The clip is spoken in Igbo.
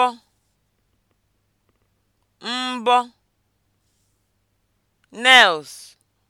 mbọ mbọ nels.